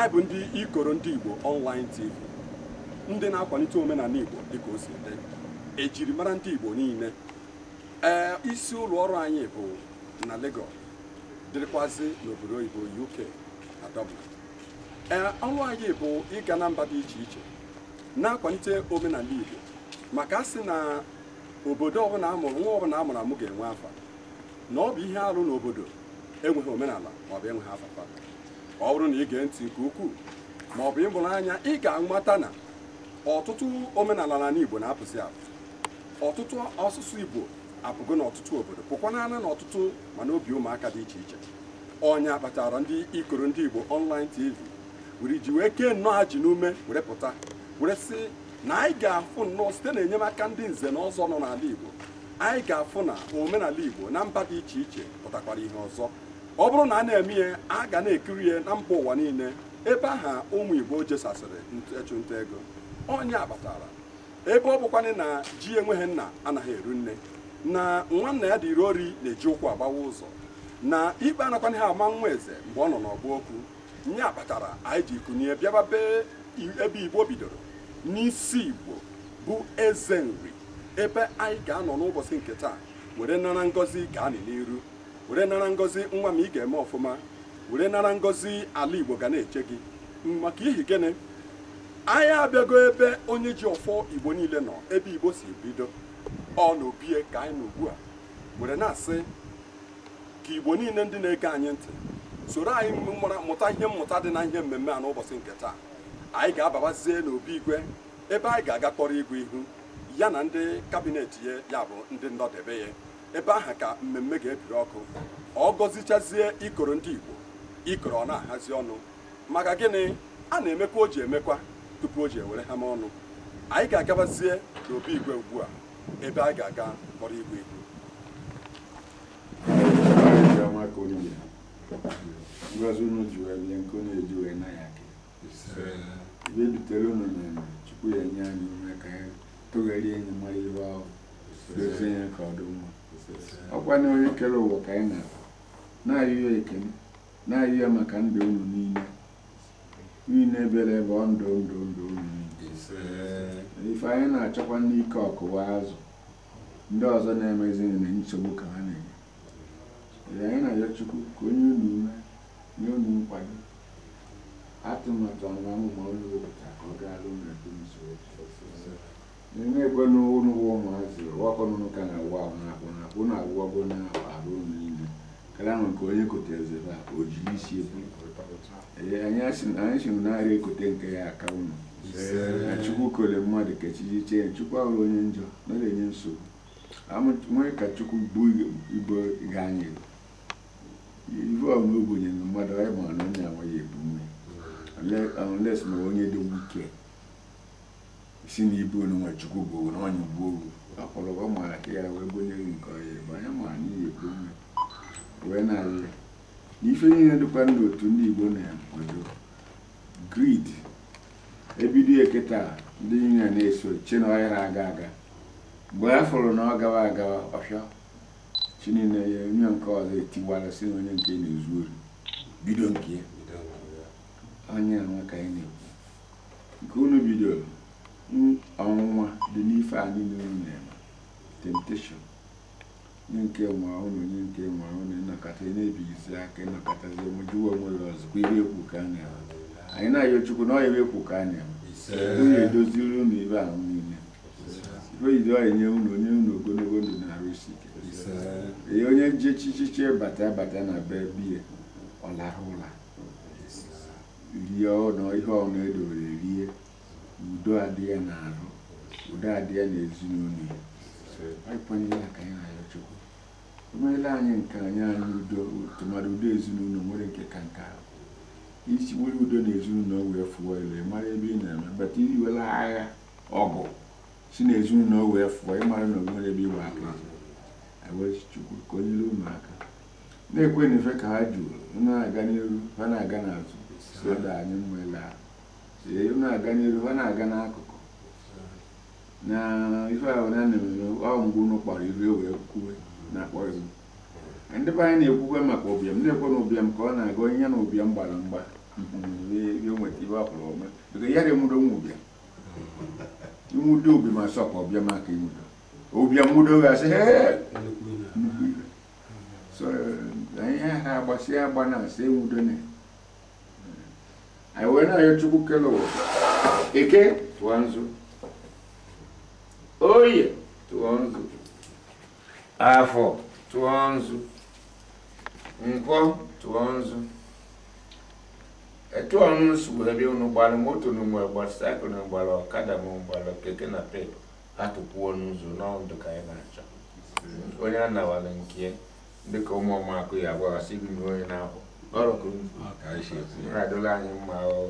anyị bụ ndị ikoro ndị Igbo online TV ndị na-akwalite omenala Igbo dịka o si dị ejiri mara ndị Igbo niile ee isi ụlọ ọrụ anyị bụ na Lagos dịrịkwazị n'obodo oyibo UK na Dublin ee ọrụ anyị bụ ịga na mba dị iche iche na-akwalite omenala Igbo maka a sị na obodo ọbụla amụrụ nwa ọbụla amụrụ amụ ga-enwe afa na ọ bụ ihe arụ n'obodo enweghị omenala maọbụ enweghị afafa ọ bụrụ na ị gee ntị nke ukwuu ma ọ bụ ịmụrụ anya ị ga-amata na ọtụtụ omenala n'ala Igbo na-apụsị apụ ọtụtụ ọsụsụ Igbo apụgo n'ọtụtụ obodo pụkwanana na ọtụtụ mana obi ụmụaka dị iche iche ọnya kpatara ndị ikoro ndị Igbo ọnlaịn TV were ji wee kee nnọọ ha ji n'ume were pụta were sị na anyị ga-afụ nnọọ site na enyemaka ndị nze na ọzọ nọ n'ala Igbo anyị ga-afụ na omenala Igbo na mba dị iche iche pụtakwara ihe ọzọ ọ bụrụ na a na-eme ya a ga na-ekiri ya na mba ụwa niile ebe aha ụmụ Igbo jesasịrị ịchụnta ego onye akpatara ebe ọ bụkwanị na ji enweghị nna anaghị eru nne na nwanna ya dịri ori na-eji ụkwụ agbawa ụzọ na ikpe anakwana ha ama nwa eze mgbe ọ nọ n'ọgụ okwu nye akpatara anyị ji kụnye bịaba ebe Igbo bidoro n'isi Igbo bụ eze nri ebe anyị ga-anọ n'ụbọchị nke taa were nara ngọzi ga-anị n'iru were nara ngozi nwa m ị ga-eme ọfụma were nara ngozi ala igbo ga na-eche gị maka ihi gịnị anyị abịago ebe onye ji ọfọ igbo niile nọ ebe igbo si bido ọ na obie ka anyị nọ ugbu a were na-asị ka igbo niile ndị na-ege anyị ntị soro anyị mụta ihe mmụta dị na ihe mmemme a n'ụbọchị nke taa anyị ga-ababazie n'obi igwe ebe anyị ga-aga kpọrọ igwe ihu ya na ndị kabinet ya bụ ndị ndọdebe ya ebe ahụ ka mmemme ga-ebiri ọkụ ọ gọzichazie ikoro ndị Igbo ikoro ọ na-ahazi ọnụ maka gịnị a na-emekwa o ji emekwa tupu o ji ewere ha ọnụ anyị ga-agabazie n'obi igwe ugbu a ebe a ga-aga kpọrọ igwe igwe ọkwa na onye kere ụwa ka anyị na-abụ na-ayụ ya ekene na-ayụ ya maka ndụ unu niile niile bịara ebe ọ ndụ ndụ ndụ unu niile ife anyị na-achọkwa n'ike ọkụwa azụ ndị ọzọ na-emezighị na nsogbu ka ha na-enye anyị na-ayọ chukwu ka onye unu ume nye unu nkwado atụmatụ ọnụọmụma onye wepụtara ka ọ gaa alụ na na-ekwena unu bụ ụmụazị wakọnụnụ ka na-awa ahụ na-akpụ na akpụ na-awụwago na arụ unu niile karịa nwe nke onye kote ezebe a o jiri isi ekwu anyị si narị ekote nke ya aka unu chukwu kole mmadụ ka chi chee chukwu ahụrụ onye njọ na na-enye nsogbu nwee ka chukwu bụ ibo ga anyị ibe ọma ogbenye mmadụ anyị ma na onye amaghị ebu nne unless na onye dị wike si n'ibe unu nwe chukwu bụ onye ugbo wee nke ọhịa ebe anya mara n'ihi na-alụ n'ife ihe dịkwa ndụ otu ndị igbo na-akwado grid ebido eketa ndị niile na-eso chi na ọhịa na-aga aga mgbe na ọ gawa agawa ọfịa chi ya onye nke ọzọ si na onye nke na-ezu bido nke na-ekwu nke unu bidoro ọnwụnwa dị n'ife anyị n'elu na-eme temptation onye nke nwe ụlọ onye nke nwe ụlọ ịnọkọta na-ebighịzi aka ịnọkọtazi omejuwa onwere ọzụkwa iri ekwu ka a na-eme anyị na-ayọ chukwu na ọyịwa ekwu ka a na-eme onye edoziri ụnụ ibe ahụ niile oyido onye ụnụ onye ụnụ ogologo ndụ na-arụsi ike onye ji chichiche bata bata na be biya ọlara ụla rie ọnụ ihe ọnụ edowere rie udo adị ya n'arụ udo adị ya n'ezinụlọ ya ịkwanyere ya ka anyị na-ayọ Chukwu o anyị nke anyị anyị udo tụmadị udo ezinụlọ nwere nke ka nke ahụ isi nwere udo na ezinụlọ wee fụọ elu mara ebe ị na-eme bata iwela agha ọgụ si na ezinụlọ wee fụọ ịmara na onwere ebe ịgba aka Chukwu ka o nyere unu aka na-ekwe na ife ka ha jụrụ na-aga n'iru ha na-aga n'azụ so da anyị ele ahụ ee na-aga n'iru ha na-aga n'akụkụ na ife ahụ na na-emere ọ mgbe unu kpọrọ iru ewee kwuwe na-akpọ iru eh, ndị be anyị na-ekwukwe maka ụbịam na-ekwe na ụbịam ka ọ na-aga onye na ụbịam gbara mgba nweta ibe akpụrụ ọma biko ya remụdo nwa ụbịam nwudo obi ma sọ ka ọbịa maka inwudo ụbịam nwudo gasị so eh, anyị ha agbasị agba na asị enwudo na anyị wee na chukwu kele eke tụọ nzu oye tụọ nzu afọ tụọ nzu nkwọ tụọ nzu etu ọnụ nsogbu ebe unu gbara moto na mgbe gbara saịkụl na ọkada ma gbara keke na pep atụpụo n'ụzọ n'ọdụ ka anyị na-achọ onye a nke dịka ụmụ ọmakụ ya agbaghasị gị na onye na-akwụ ọ̀rọ̀ kò ní ìràdọ́lá yín máa ọ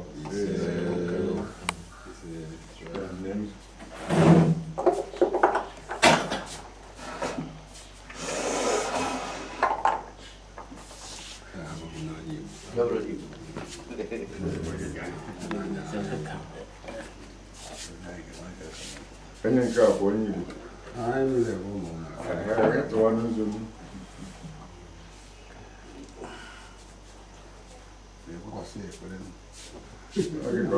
Ẹni nǹkan àpò yìí. Ààrẹ ìlẹ̀ fún mọ̀. Ààrẹ ìtọ́wọ́nú zomi. every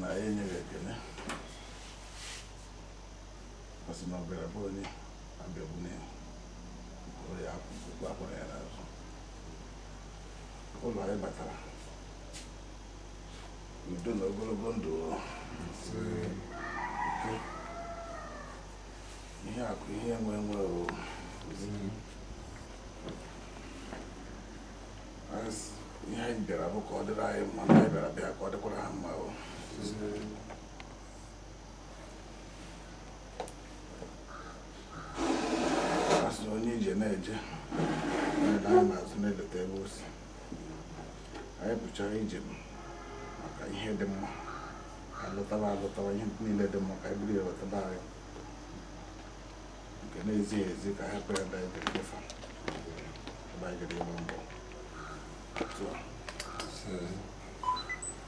na enyere ekele asị na bụ onye abịagbune ya ya n'azụ ụlọ anyị batara udo na ogologo ndụ ihe akụ ihe enwe enwe anyị bịara bụ ka ọ dịrị anyị mma na anyị bịara bịa ka ọ dịkwara ha mma asị na onye ije na-eje anyị na-azụ na-eleta ebe osi anyị pụchara ije maka ihe dị mma alụtaba alụtaba ihe niile dị mma ka anyị bụrụ anyị nke na-ezighị ezi ka hapụ ya ebe anyị dịrị mbọ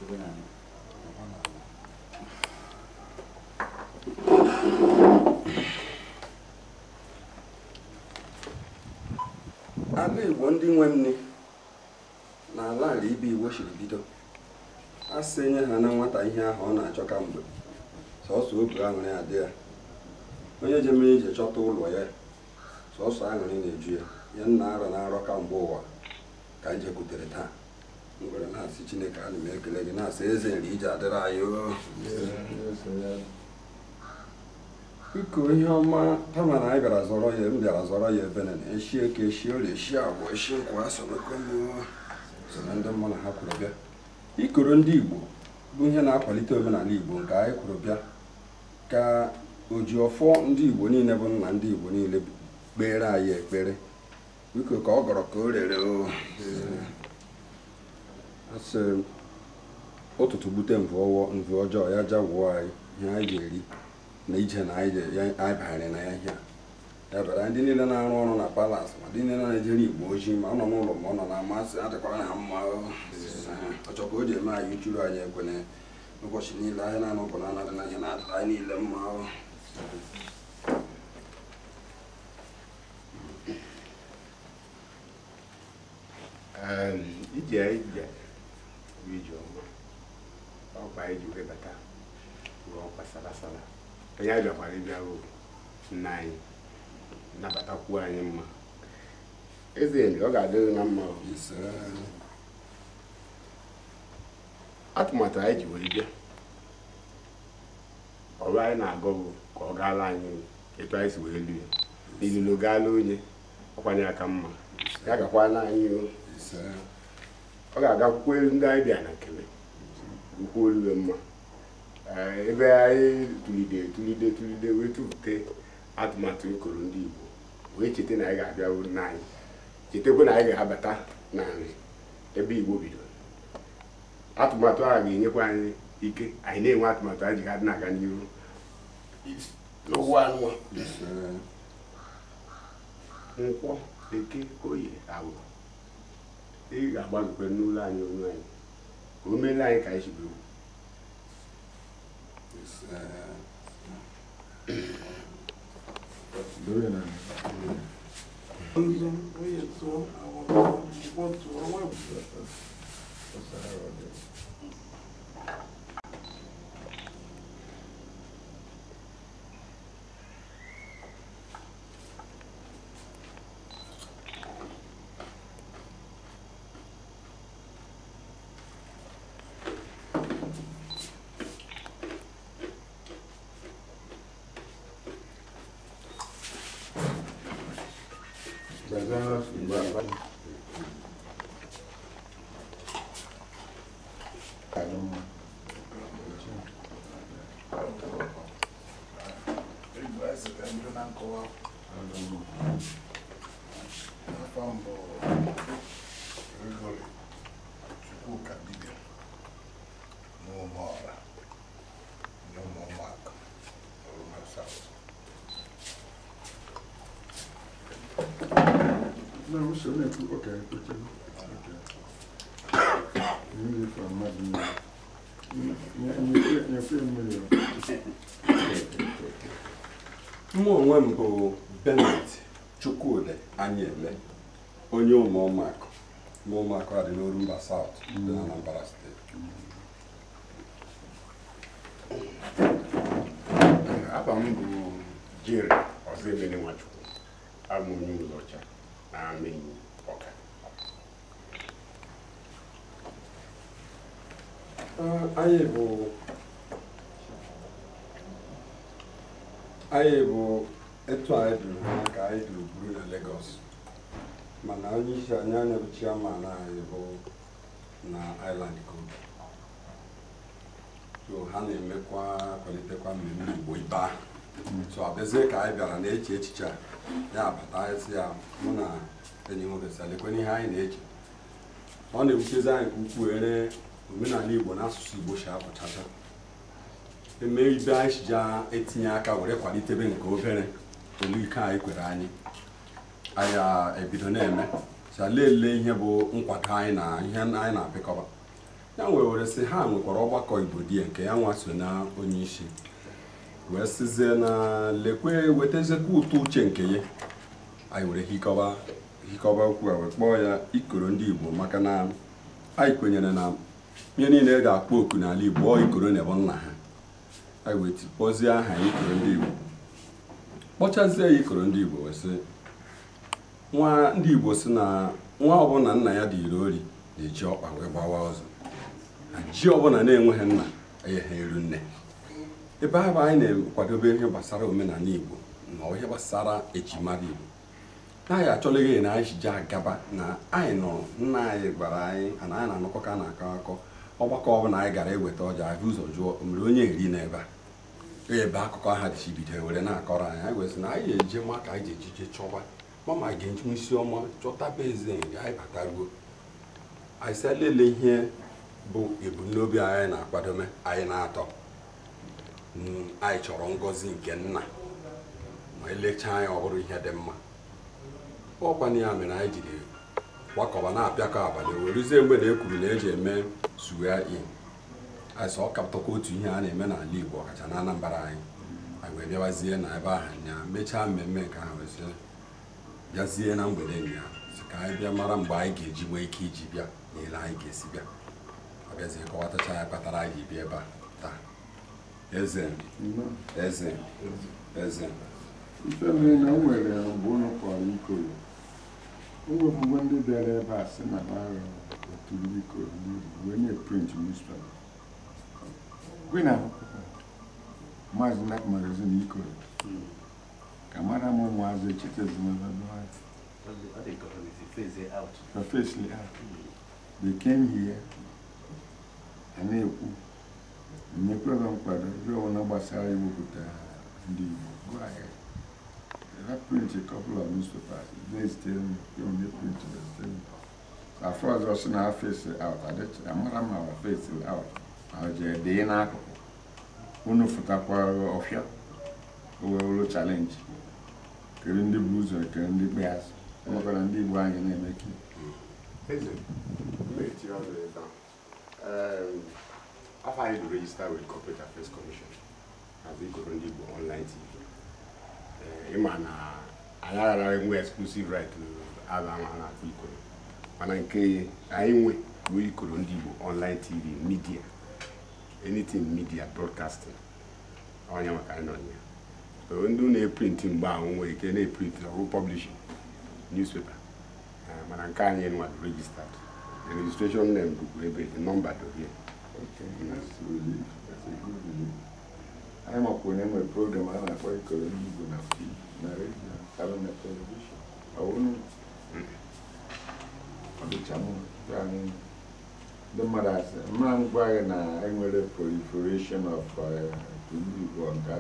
누구냐면 ala igbo ndị nwe nne na ala ala ibe e siri bido a sị nye ha na nwata ihe ahụ ọ na-achọ ka mgbe sọsọ obi aṅụrị adị ya onye ji mere ije chọta ụlọ ya sọsọ aṅụrị na-eju ya ya nna arọ na arọ ka mgbe ụwa ka njekwutere e taa ngwere na-asị chineke ana m ekele gị na-asị eze nri iji adịrị anyị biko ihe ọma kama na anyị bịara zọrọ ya m bịara zọrọ ya ebe na eshi eke eshi orie eshi agwa eshi nkwa soro ndị ha kwuru bịa ikoro ndị igbo bụ ihe na-akwalite omenala igbo nke anyị kwuru bịa ka ọfọ ndị igbo niile bụ nna ndị igbo niile kpere anyị ekpere biko ka ọ gọrọ ka o rere o asị ụtụtụ gbute mvọwọ mvọ ọjọọ ya jawụọ anyị ihe anyị ga-eri na ije na anyị bagharị na ya ihe ya bịara ndị niile na-arụ ọrụ na palas ma ndị niile na-ejere igbo ojii ma ọ nọ n'ụlọ ma ọ nọ na amasị adịkwara na mma ọchọ ka o ji eme anyị chụrụ anyị ekwene ụbọchị niile anyị na-anụ ọgụ na-anaghị na ihe na-adịra anyị niile mma ehm, ije ije ijeọma ọkwa anyị ji wee bata rụọ ọkwa sarasara onye anyị bịakwara ịbịa ruo nna anyị nabatakwuo anyị mma eze enyi ọ ga-adịrị na mma atụmatụ anyị ji wee bịa ọrụ anyị na-agụ bụ ka ọ gaala anyị etu anyị si wee lu ya ilulu gaala onye ọkwanye aka mma ya gakwana anyị o ọ ga-aga kwuo elu ndị anyị bịa na nkele ukwu olughe mma eh, ebe anyị tulide tulide tulide wee tụpụta atụmatụ nkoro ndị Igbo wee cheta na anyị ga-abịaru n'anyị chetakwa na anyị ga-abata na nri ebe Igbo bidoro atụmatụ a ga-enyekwa anyị ike anyị na-enwe atụmatụ anyị ji ga na-aga n'ihu n'ụwa nkwọ bekee oyi agwụ e ga agba n'ụlọ anyị onwe anyị ka o meela anyị ka anyị chiburu Thank you. wusu ne ku ok kuti ok ne fa ma di ne ne ne ne fi mu yo mụ onwe m bụ benet chukwudi anyele onye ụmụ ụmụakụ ụmụ ụmụakụ adị n'oru mba saụt dị na anambra steeti Anyị bụ etu anyị duru ka anyị duru buru na Legọs mana onye isi anyị anya bụ chairman anyị bụ na Island Code so ha na-emekwa kwalitekwa mmemme Igbo ibe ahụ so abezie ka anyị bịara na-eche echiche a ya abata anyị si ya mụ na enyi nwoke salekwe ihe anyị na-eche ọ na-ewutezi anyị ka ukwuu ere omenala igbo na asụsụ igbo si apụchacha eme ibe anyị ji etinye aka were kwalitebe nke obere olu ike anyị kwere anyị anyị ebido na-eme sa lelee ihe bụ nkwado anyị na ihe anyị na-apịkọba ya wee were sị ha nwekwara ọgbakọ igbo di nke ya nwa so na onye isi wee sịzie na lekwe wetazekwa ụtọ uche nke ya anyị were hikọba hikọba okwu a wee kpọọ ya ikoro ndị igbo maka na anyị kwenyere na ihe niile ga-akpọ oku n'ala Igbo ọ ikoro na ebe nna ha a aha ikoro ndị Igbo kpọchazie ya ikoro ndị Igbo wee sị nwa ndị Igbo si na nwa ọbụla nna ya dị iri ori na-eji ọkpa wee gbawa ọzọ na ji ọbụla na-enweghị nna enyeghị eru nne ebe ahụ anyị na-ekwadobe ihe gbasara omenala Igbo na ihe gbasara ejimara Igbo na anyị achọla na anyị ji agaba na anyị nọ nna anyị gwara anyị na anyị na ka a na-akọ akọ ọgbakọ ọbụla anyị gara eweta ọja ahụ ụzọ jụọ mgbe onye eri n'ebe a e ebe akụkọ aha dịchibido were na-akọrọ anyị anyị gwesị na anyị ga eje ma ka anyị ejije chọwa mama ga-eji isi ọma chọtaba eze anyị bataruo anyị sị ihe bụ ebumnobi anyị na-akwadome anyị na-atọ mm, anyị chọrọ ngọzi nke nna ma elechaa anyị ọhụrụ ihe dị mma ọkwana ya mere anyị jiri gbakọba na-apịakọ abalị werezie mgbe na ekwuru na eji eme suga in azụ ọkapụtakwa otu ihe a na-eme n'ala Igbo ọkacha na anyị anyị wee bịawazie na ebe ahụ ya mechaa mmemme nke ahụ wezie bịazie na mgbede ya si ka anyị bịa mara mgbe anyị ga-eji nwee ike iji bịa na ile anyị ga-esi bịa ọ bịazie kọwatacha ya kpatara anyị bịa ebe a taa eze eze eze ife mere na m nwere abụọ kwara ikoro iwepụgo ndị bịara ebe a sị na ha otuliko onye print newspaper gị na maazị nek magazin iko ka mara m ụmụazị chitezmfesli they came here a na-ekwu nyekwere m kwado ihe ọbụla gbasara iwepụta ndị Igbo go I print a couple of newspapers. They still they only printed the same. At first, I was not face uh, out. I did. I'm not my face out. I was a uh, n'akụkụ in Africa. Unu futakwa ọfịa owewolo challenge kere ndị bụ ụzọ kere ndị kpe azụ ndị Igbo anyị na-eme ka Eze, ọzọ ebe afọ anyị to register with Corporate Affairs Commission as ikoro ndị Igbo online Eh, ịma na anyị aghara enwe exclusive right ala ahụ na ikoro mana nke anyị nwe ikoro ndị Igbo online tv media anything media broadcasting onye maka anyị nọ ndị na-eprint mgbe ahụ nwere ike na-eprint ọrụ publishing newspaper eh, mana nke anyị nwadụ registered the registration ebe the number dị anyị makwuru e na enwere program a na-akpọ ikoro n'igbo na na redio na telivishọn ọwụrụ ọdịcha mma ndị mmadụ asị mma m gị na enwere proliferation of igbo nke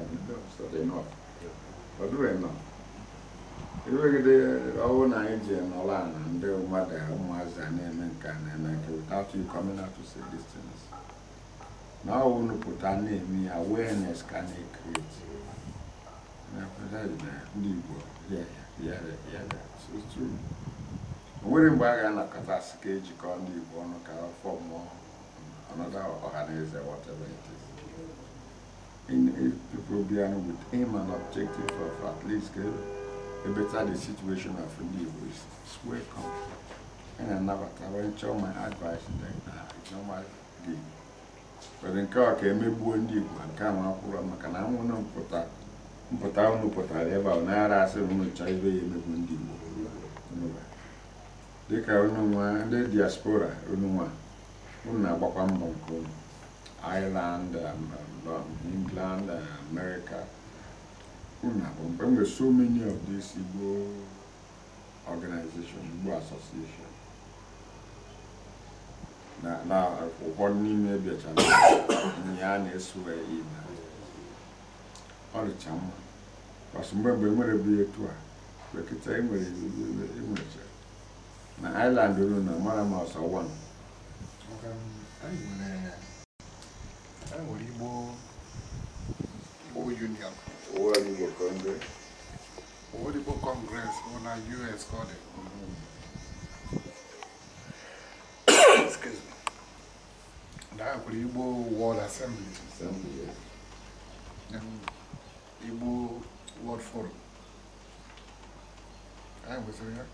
nọ ọwụ na anyị ji nọla ndị mmadụ ụmụazị a na-eme nke na-eme nke without you coming Now na to put na name. ya awareness ka yeah, Yeah, yeah, yeah, yeah. nwere mgbe a ga-anakọtasị the ejikọ ndị Igbo ọnụ ka afọ mụọ anọda ọha another organizer, whatever it is in people being with aim and objective of at least a better the situation of the Igbo is welcome and anabata when chọọ my advice then it's normal the kwere nke ọ ka emegbuo ndị Igbo ma nke ahụ akwụrụ maka na anwụna mpụta mpụta ụnụ pụtara ebe ahụ nara asị na ụnụ chọọ ibe ya emegbu ndị Igbo dịka ụnụ ndị diaspora ụnụ ụnụ na-agbakwa mbọ nke ụnụ Ireland um, um, England um, America ụnụ na-agbọ enwere so many of these Igbo organization Igbo association na ụfọdụ n'ime na ya na-eso ibe ọ dịcha mma kpasụ mgbe mgbe nwere bụ etu a bekịta enwere enwecha e, e, e na island ru na mara ma ọsọ wan nwere igbo union ụwa igbo kọngres kọngres bụ na us Dapụrụ Igbo World Assembly. Assembly, and Igbo World Forum. Anyị kwesịrị ya.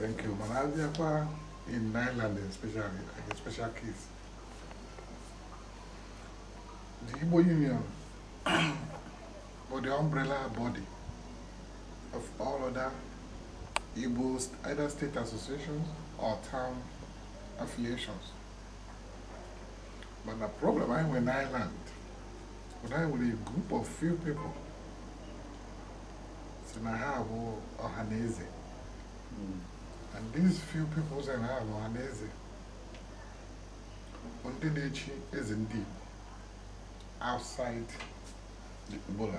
Thank you. Malaysia, in Ireland especially, like a special case. The Igbo Union or the umbrella body of all other Igbo either state associations or town affiliations. But the problem I have in Ireland, when I with a group of few people, so I have Ohanese. Mm. And these few people say I have Ohanese. Ondinechi is indeed outside the Igbo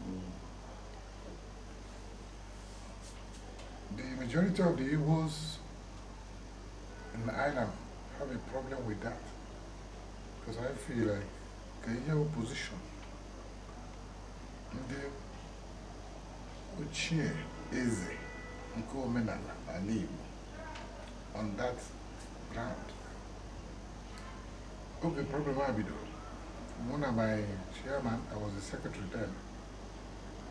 Mm. The majority of the Igbos in Ireland have a problem with that because I feel like the opposition a position. eze nke omenala on that ground Okay, problem a bidoro One of my chairman I was the secretary then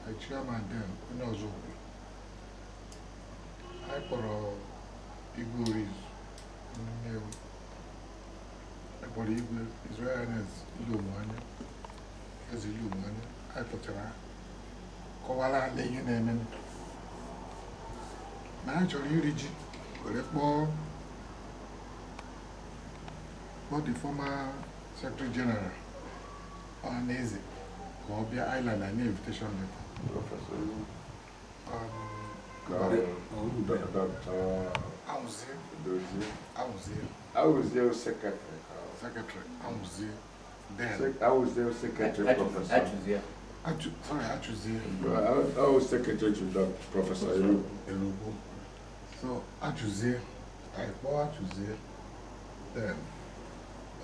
my chairman then onye ọzọ I kpọrọ Igor Orizu ihe akpọrọ igwe Israel anya eze Igbo anya anyị pụtara kọwara ala ihe na-eme na anyị chọrọ iri ji were kpọọ kpọọ the former secretary general ọhaneze ka ọ bịa island na invitation letter Auzeu. Dozeu. Auzeu. Auzeu secretário. Secretário. Auzeu. Dela. Auzeu secretário, professor. Atuzeu. Sorry, Atuzeu. Auzeu secretário do professor Elugu. Elugu. So, Atuzeu. I bought Atuzeu. Then,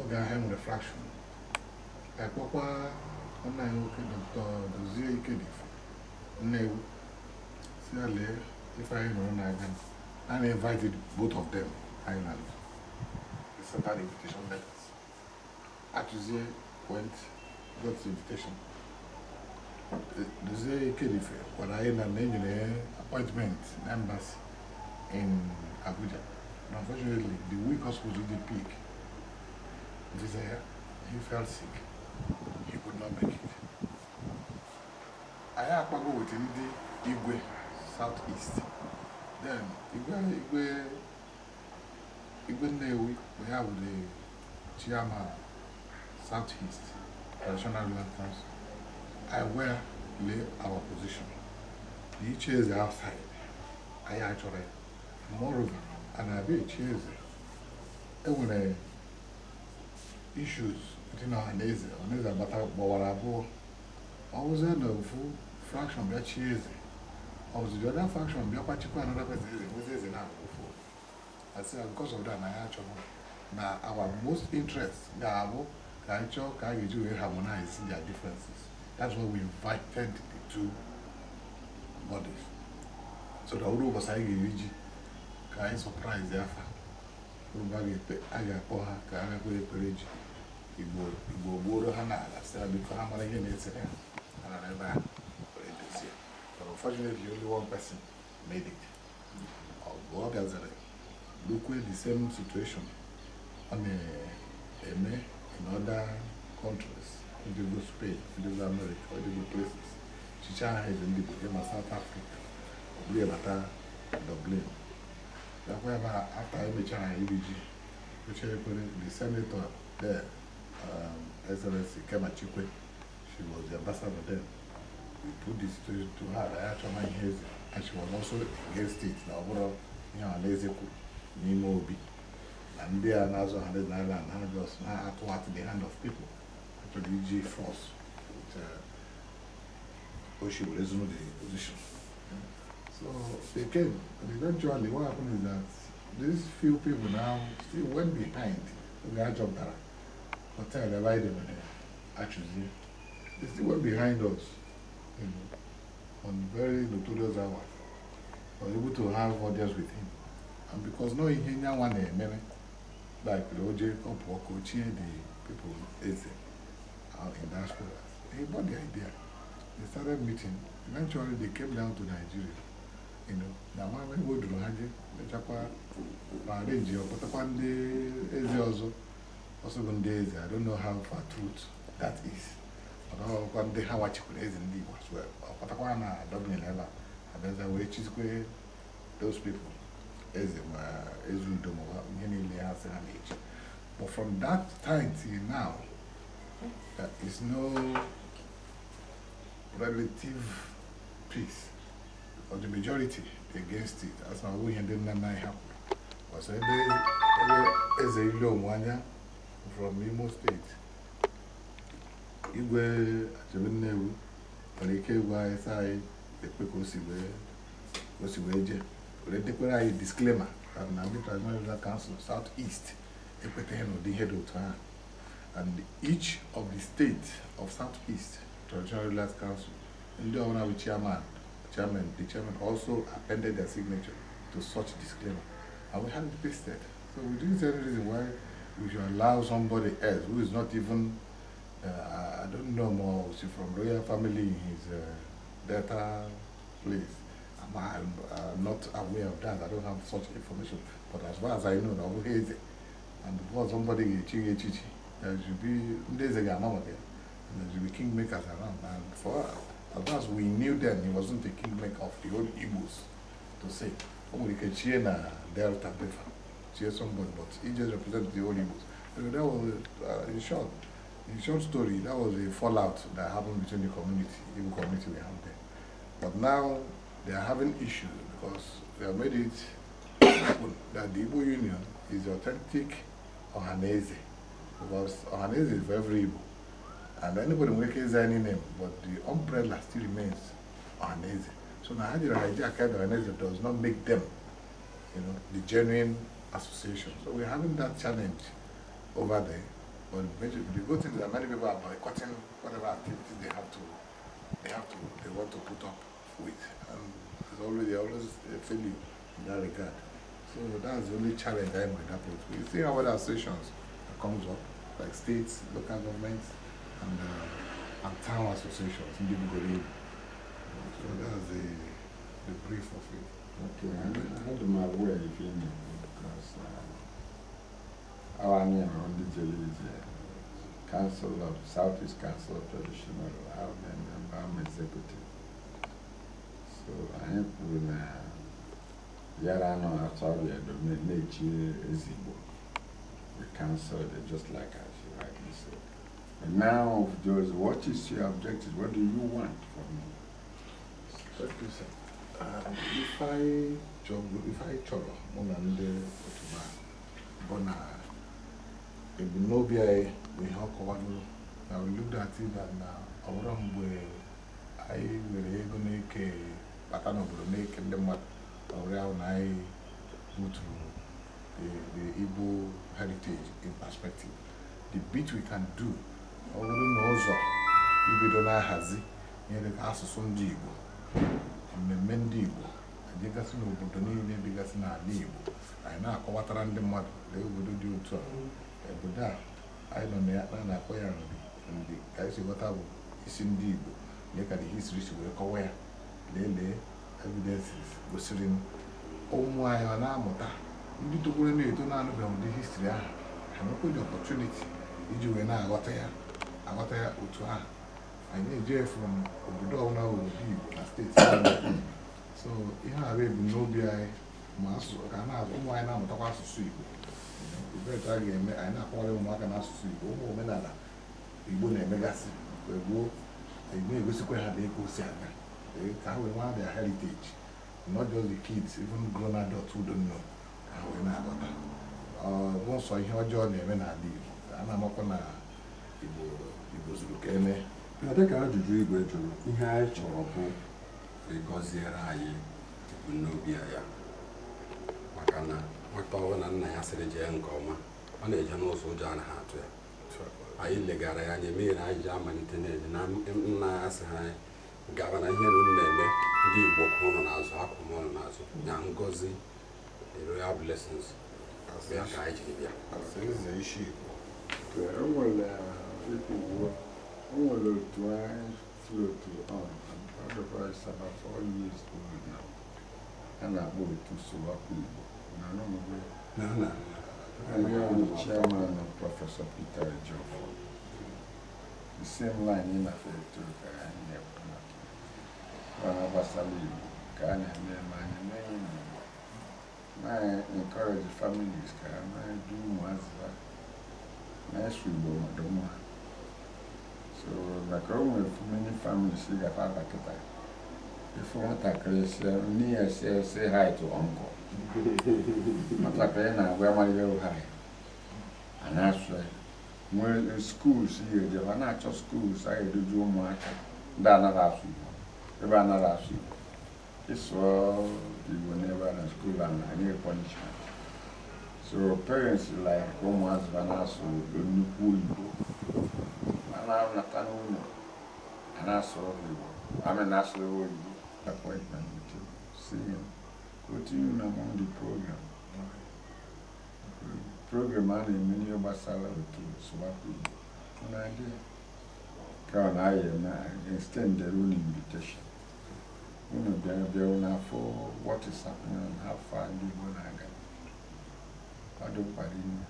Oga Hem refraction. I bought ọ̀nà ìwòkè dọ̀tọ̀ Dozie Ikedifu. Nnewu. Sí àlẹ́ ifá ìrọ̀rùn não gánà. and invited both of them island. They sent out invitation letters. Atuzie went, got the invitation. Duzie Kedife, when I in an appointment in embassy in Abuja. And unfortunately, the week was supposed to be peak. Desire, he fell sick. He could not make it. I to a with the Igwe, Southeast. I wear lay our position. The chairs are outside. I actually, moreover, and I be chairs. Everyone issues between our nation, our nation, but our abụọ. I was in the full fraction of that chairs. obviously the other function bịakwachikwaa another person eze nwezi eze na for asị na ah, because of that na ya achọrọ na our most interest ga-abụ ka anyị chọọ ka a ga-eji wee harmonize their differences that's why we invited the two bodies so na ụrụ ụbọchị anyị ga-eji ka anyị surprise afa ụrụba a ga-akpọ ha ka ha igbo ha mara ihe na-esere Unfortunately, only one person made it. go Although others look at the same situation on a, a in other countries, in the Spain, in the America, in the places. She tried in the South Africa, Obliata, Dublin. That's why after MHI EBG, which the senator there, um, Excellency Kema Chikwe, she was the ambassador there. put this to, to her after my hears it. And she was also against it. Now, what up? You know, lazy n'ime obi na ndị also, na-azụ I naira na I just na-atụwatụ the hand of people achọrọ iji force uh, o oh, she were zone the position. So they came, and eventually what happened is that these few people now still went behind the Ajobara hotel, Elijah, actually. They still went behind us. you know, on very notorious hours, was able to have audience with him. And because no Ihenya one many like Roger Opoko, the people ate out uh, in diaspora. He bought the idea. They started meeting. Eventually they came down to Nigeria. You know, na mama iwo duru ha je mechakwa ma arrange ọkpọtakwa the eze ọzọ also, bụ ndị eze I don't know how far truth that is. ọkwa ndị ha wachikwara eze ndị Igbo ọkpatakwara na dọbinyere ebe abịaza wee chizikwe those people eze ma ezu udo ma ihe niile ha sị ha na-eji but from that time till now there is no relative peace or the majority against it as na ihe ndị nna nna anyị ha ọsọ ebe eze ile onwe anya from Imo State. igwe achebe nnewu nwere ike ịgwa anyị sị anyị ekpe ka o si wee jee were dekwere anyị disklema na ndị transnational council south east ekweteghị n'ụdị ihe dị otu ahụ and each of the states of south east transnational council ndị ọbụla bụ chairman chairman the chairman also appended their signature to such disclaimer and we had it pasted so we didn't see any reason why we should allow somebody else who is not even uh, I don't know more. She's from royal family. He's a data place. I'm, I'm uh, not aware of that. I don't have such information. But as far as I know, now who is it? And before somebody chichi chichi, there should be there's a Ganama there. And there should be kingmakers around. And for as far as we knew then, he wasn't a kingmaker of the old Igbos to say. Only na Delta Befa. Somebody, but he just represents the old Igbos. So that was, uh, in short, in short story, that was a fallout that happened between the community, even community we have there. But now they are having issues because they have made it happen that the Igbo Union is authentic Ohanese. Because Ohanese is very every Igbo. And anybody will make any name, but the umbrella still remains Ohanese. So Nahajira Hijack and Ohanese does not make them, you know, the genuine association. So we're having that challenge over there. But major, the good thing is that many people are boycotting whatever activities they have to, they have to, they want to put up with, and it's always always a failure in that regard. So that's the only challenge I might have with. We see how other associations that comes up, like states, local governments, and uh, and town associations in Djibouti. So that's the the brief of it. Okay, I, you because. Uh, our name on the television. Council of Southeast Council of Traditional Our member I'm executive. So I am with Yara no Atoria Dominate Ezibo. The council, it just like I should rightly said. And now those what is your objective? What do you want from me? Thank you, sir. Um, if I chọrọ, if I chọrọ, mụ na ndị otu bụ na ebumnobi anyị bụ ihe ọ kọwalụ na wiludatiba uh, na ọbụrụ mgbe anyị nwere ego na-eke bata n'obodo na-eke ndị mmadụ ọrịa ahụ na anyị buturu the heritage in perspective the bit we can do ọ bụrụ na ụzọ ibido na-ahazi ihe dịka asụsụ ndị Igbo mmemme ndị Igbo adịgasị n'obodo niile dịgasị n'ala Igbo anyị na-akọwatara ndị mmadụ na obodo dị e otu a obodo a anyị nọ na ya na na-akpọ ya nri ka anyị si ghọta bụ isi ndị Igbo lee ka dị history si wee kọwa ya lelee evidences gosiri ụmụ anyị ọ na-amụta ndị togoro na-eto na-anụbeghị ụdị histri ahụ ha nwekwenye ọpọtuniti iji wee na-aghọta ya aghọta ya otu ahụ anyị na-eje from obodo ọbụla obodo Igbo na steeti so ihe a bụ ebumnobi anyị ma ụmụ anyị na-amụtakwa asụsụ Igbo ebee a ga-eme anyị na-akọwara ụmụaka n'asụsụ Igbo ụmụ omenala Igbo na-emegasị mgbe gboo na-egosikwa ha dịka o si aga ka ha wee nwa their heritage not just the kids even grown adults who ka ha wee na-aghọta n'ụsọ ihe ọjọọ na-eme n'ala Igbo a na-amakwa na Igbo zuru ka eme dịka ajụjụ igwe jụrụ ihe anyị chọrọ bụ ịgọziere anyị ebumnobi ya maka na. nwata ọbụla nna ya sịrị jee nke ọma ọ na-eje n'ụzọ ụjọ anaghị atụ ya anyị legara ya anya emeghi anyị ji amalite na-eje na nna ya sị anyị gaba na ihe na-eme ndị igbo ụnụ na-azụ akwụ m ụlọ n'azụ na ngozi royal blessings ya ka anyị jiri bịa uh, um, a na-akpọ otu Sowapu Igbo Nana. And we are the chairman of Professor Peter Joffo. The same line in a fair to Kanye One of us are leaving. Kanye Neman and Nain. I encourage the families, can I do what's that? Nice we go, Madonna. So, like all many families, see the father. If you want to say hi to uncle. Matakịrị na-agwa amaghị ụgha ya a na-asụ ya nwee skuul ya ejewa a na-achọ skuul a ga-eduzi ụmụaka ndị anaghị asụ Igbo ebe anaghị asụ Igbo ịsụọ Igbo n'ebe a na skuul a na-enye punishment so parents like ụmụazụ oh, a na-asụ nnukwu Igbo a na-anata n'ụlọ a na-asụ Igbo I mean, that's the appointment with you. See him. continuing among the program. program a na of n'ihe gbasara otu sụwapụ Igbo na-adị ka I na na-ayị na extendere unu invitation unu bịara bịara n'afọ what is happening and how far ndị Igbo na-aga ọ dị mkpara ime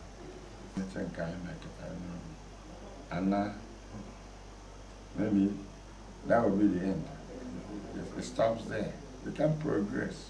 eche nke anyị na-eketa n'ụlọ ana maybe that will be the end if it stops there we can progress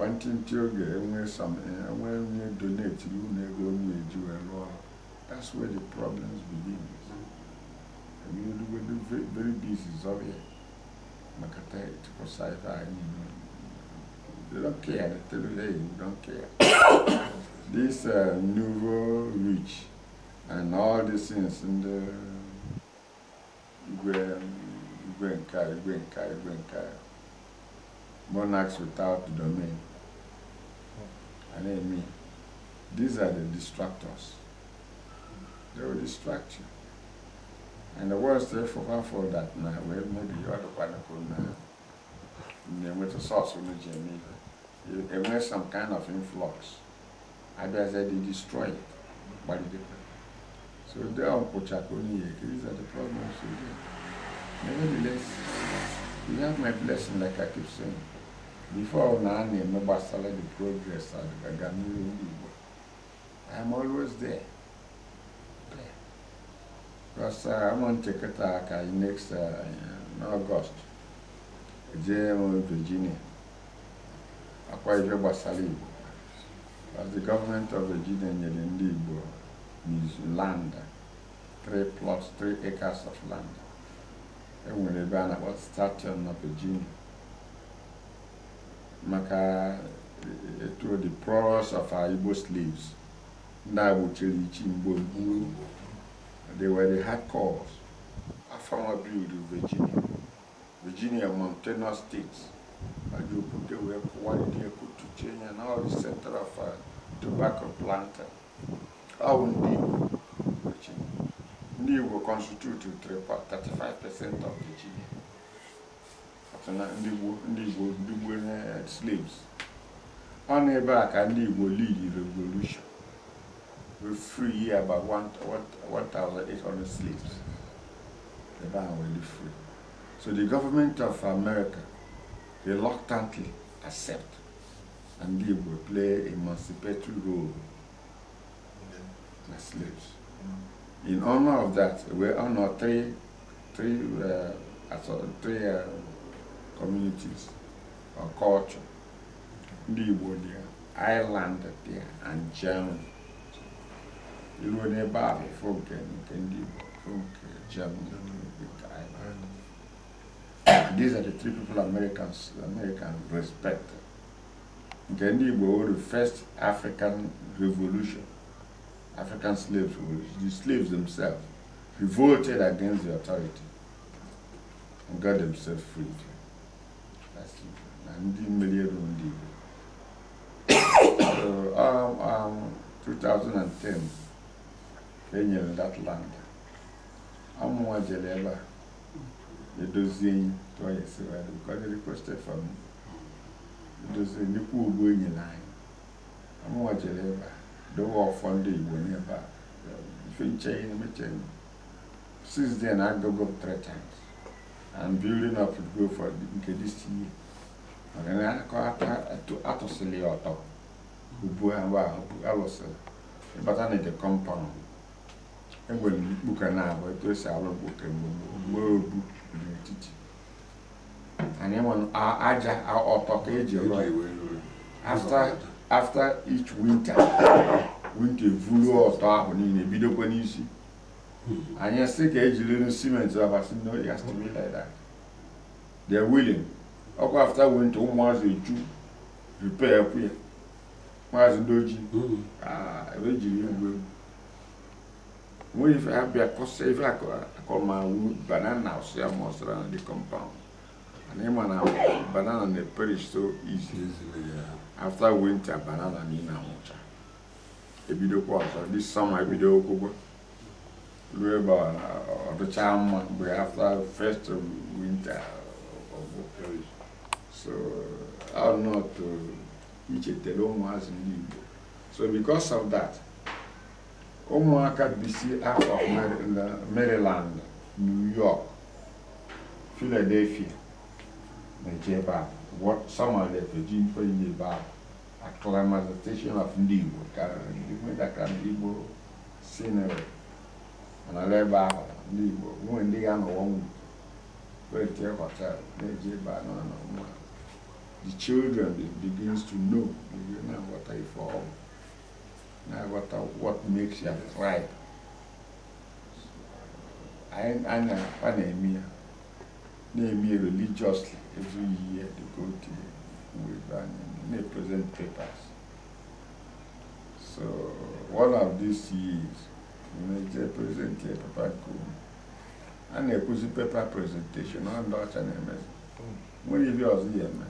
nwantị ntị oge enwe something enwe donate iwu na ego m na-eji that's where the problems begin emerugodo very busy zọbịa maka tịkwasa ife anyị they don't care they tell you hey don't care this uh, nouveau rich and all these things ndị igwe igwe nka igwe nka igwe nka monarchs without the domain and amen. These are the distractors. They will distract you. And the world still for for that now. Well, maybe you are the one man, now. with the source of Jamie, It have some kind of influx. I bet they destroy it. But it So they are Pochakoni. These are the problems we Nevertheless, you have my blessing, like I keep saying before now I am about the progress at the Ghanaian I am always there. there. Because uh, I'm on Chekataka next uh, in August. JM Virginia. I quite gbasara Igbo. As the government of Virginia nyere Libo Igbo is land, three plots, three acres of land. E nwere ebe a na-akpọ Station na Virginia maka eh, eh, through the prowess of our Igbo slaves. Now we tell you, They were the hardcores. I found a build in Virginia. Virginia, Montana state, And you put away quality, could to change, and all the center of a uh, tobacco planter. will Ndiwo, Virginia. Ndiwo constituted 35% of Virginia. And na ndị Igbo ndị nwere slaves ọ na ebe a ka ndị Igbo lead revolution we free about 1,800 slaves ebe a were free so the government of America reluctantly accept and they will play emancipatory role as slaves. In honor of that, we honor three, three, uh, three uh, communities, our culture. Ndị Igbo there, Ireland and Germany. You know, a bụ nke nke ndị Germany, Ireland. Ah, these are the three people Americans, American respect. Nke was were the first African revolution, African slaves, the slaves themselves revolted against the authority and got themselves freed. na ndị mmeri ndị Igbo 2010 ka e nyere that land amụnwa jere ebe a edozie enyi tụọ ya esiwere ka ọ dị requested edozie nnukwu ogbu enyi n'anya amụnwa jere ebe a dowe ọfọ ndị Igbo n'ebe a ife nche ihe meche since then I go and building up to go for nke this year akọ atụsịla ya ọtọ ahụ alụsịrị ịbata na ije kọmpaụnd enwere mkpuke na-abụ etu esi alụ mkpuke mgbe obu n'etiti anyị nwere aja ọtọ ka eji after each winter winter evulu ọtọ ahụ niile bidokwa n'isi hmm. anyị sị ka ejiri simenti abasị n'oyi e astimilida they're willing ọkọ after winter ụmụazị eju repair kwụ ya maazị doji mm-hmm. ah, ebe e jiri mgbe nwere ife abịa kọsa ife akọmawu banana ọsịa ma ọsịra na the compound and ịma na banana na perish so easy after winter banana na ị na-anwụcha ebidokwa ọzọ this summer ebido okwụgwọ ruo ebe ọ mma mgbe after first winter of perish So uh, how not to uh, as So because of that, à bisi out of Maryland, New York, Philadelphia, Najeba, what some a a of ndị Igbo station de wedaka ndị Igbo sinere dit ebe ahụ de a On na a the children begins to know you know what I for now what what makes you cry I and I and maybe religiously every year they go to Weber and they present papers. So one of these years, they present a paper and they put the paper presentation on Dutch and MS. When you was here, man.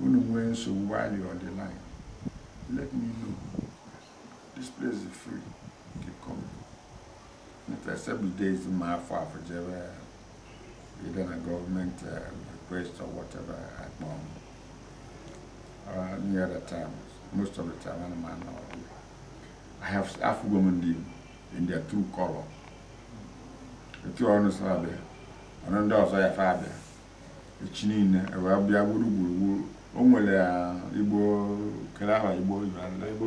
Unu nwee nsogbu while you're on the line, let me know. This place is free. Keep coming. If I several days in my father, afọ jebe either a government uh, request or whatever at I or any uh, other time, most of the time I'm man or I have half women in, in their true color. The two understand, another also I have a chin, I will be able to o nwere igbo kere aha igbo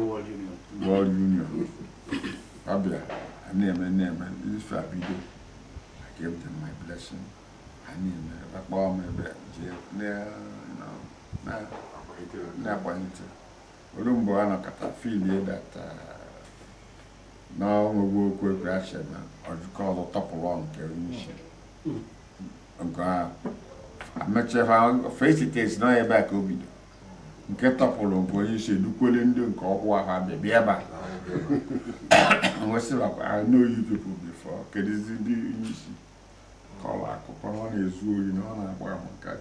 world union ọ bịara na-eme na-eme ife a I gave them my blessing ha na-eme akpọọ m ebe jee na-agbanite olu mgbe a nọkọta filie data uh, n'ọnwegwu okwu ekwe achị na ọjụkọ ọzọ tọpụrụ nke onye isi hmm. nke ahụ amechakwa fesitesi nọ ebe a ka o bido nke tọpụrụ bụ onye isi edukwele ndị nke ọkwụ ahụ abịa bịa ebe a wesịrakwa n'oyi people before kedụzi ndị onye isi kọrọ akụkọ ọ na-ezu oyi na ọ na-agba ahụ nka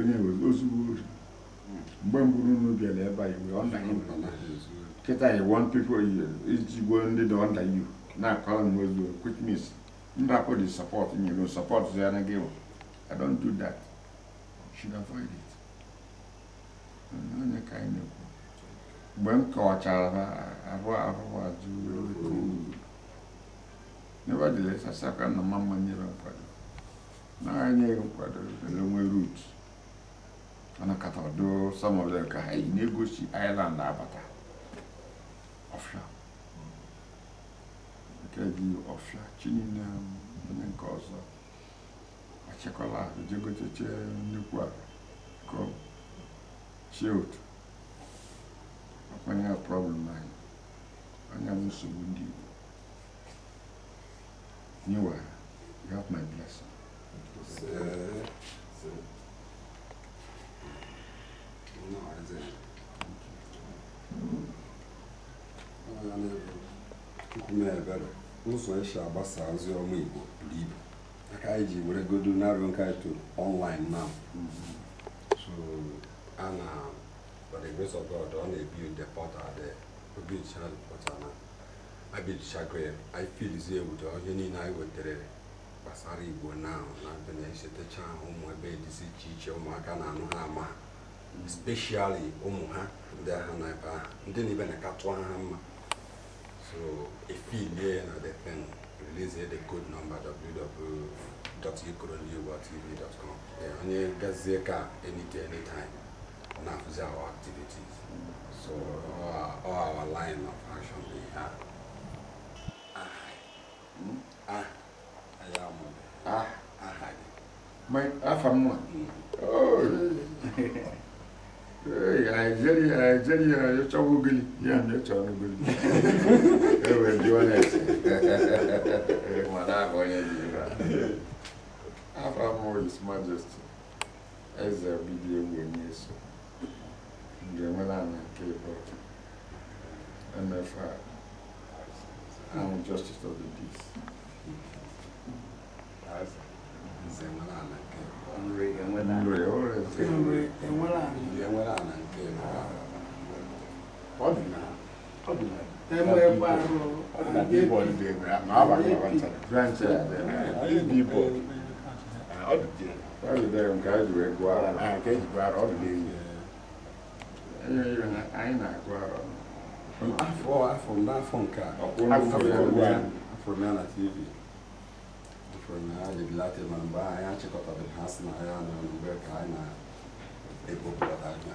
onye ozugbo ori mgbe mbụ unu bịara ebe a iwe ọ kịta iwe iji ndị dị ọnda iwu na-akọrọ m ozu Ndako dey support and you go support Zianagewo. I don't do that. You should avoid it. No kind of mgbe m kọwachara ha arụ ahụhụ ajụ nevertheless asaka na mama nyere nkwado na-enyeghị nkwado ele nwere rut ana kata ọdụ some of them ka ha na-egosi Ireland abata ọfịa kredi ɔfia tsini ne ne ŋkɔ zɔ atsikɔla é nukua kɔ shield ɔkpɛni a é ayi é mi sobu di o niwa you have my blessing. Sir, sir. é I didn't. Thank you. Oh, I never. Come here, better. ụzọ esi agbasa ozi ọma Igbo buru ibu aka anyị ji were godo narị nke anyị tụrụ online now a na by the grace of ọ na ebi the portal there obicha portal na abichago ya anyị filizie ụdị ihe niile anyị wetara gbasara Igbo now na na-echetecha ụmụ ebe dịzi iche iche ụmụaka na-anụ ha ama especially ụmụ ha ndị ha na ebe ahụ ndị na ibe na-akatụ ha mma So affiliate and the thing release the code number www.ukronewatv.com. And you get Zeka anytime, anytime. Now for our activities. So all our, all our line of action we have. Ah. Hmm? Ah. I am. Ah. Ah. My, ah, from mm. one. Oh. Nigeria eh, achọwo ogili ya na ịchọ na mana afa His Majesty eze bibi egwu onye eso ga-enwe nke ịbụ ahụ justice of the peace maaba na wantara franchise dị bibọ ọ dị dị ọ dị dị nke anyị wee gụọ ara na nke eji gụọ ara ọ dị n'enyi na anyị na-agụ ara afọ a afọ na na tv afọ na ebilata ma mgbe anyị achịkọtabeghị ha si na ya na mgbe ka anyị na-ebopụta anya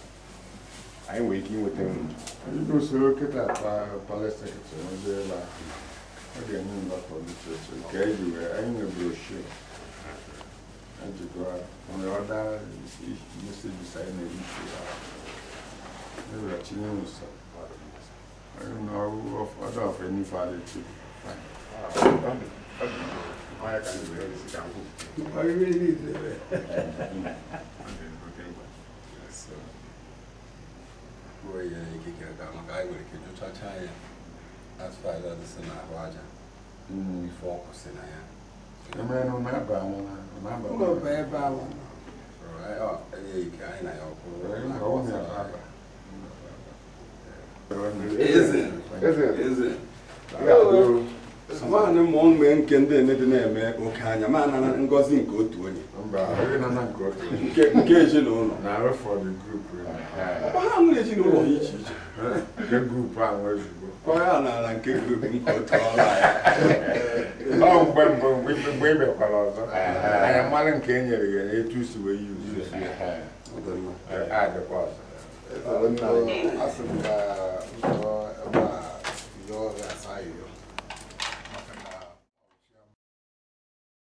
anyị wee ike não nri ndị usoro kịta palestin é ebe ahụ ọ ga-enye mgbakọ literature É anyị wee anyị nwe eu ejikwa nwere ọda mesejis anyị na-ebufe ya eweghachi nye nso na ọda ofe n'ife adị tupu Olha, cara, eu vou ya na ikike ga maka anyị nwere ike jụchacha ya aja aja ife ọkụ si na ya ụlọba anyị na ya eze eze nwaanyị mụọ mgbe nke ndị emebi na-eme oke anya ma nara ngozi nke otu onye nke ezinụlọ eh, ha nwere ezinụlọ ha iche iche ọya n'ala nke grupu nke otu ọla ya mgbe mgbe e ọzọ anya nke e nyere ya na etu si wee adịkwa ọzọ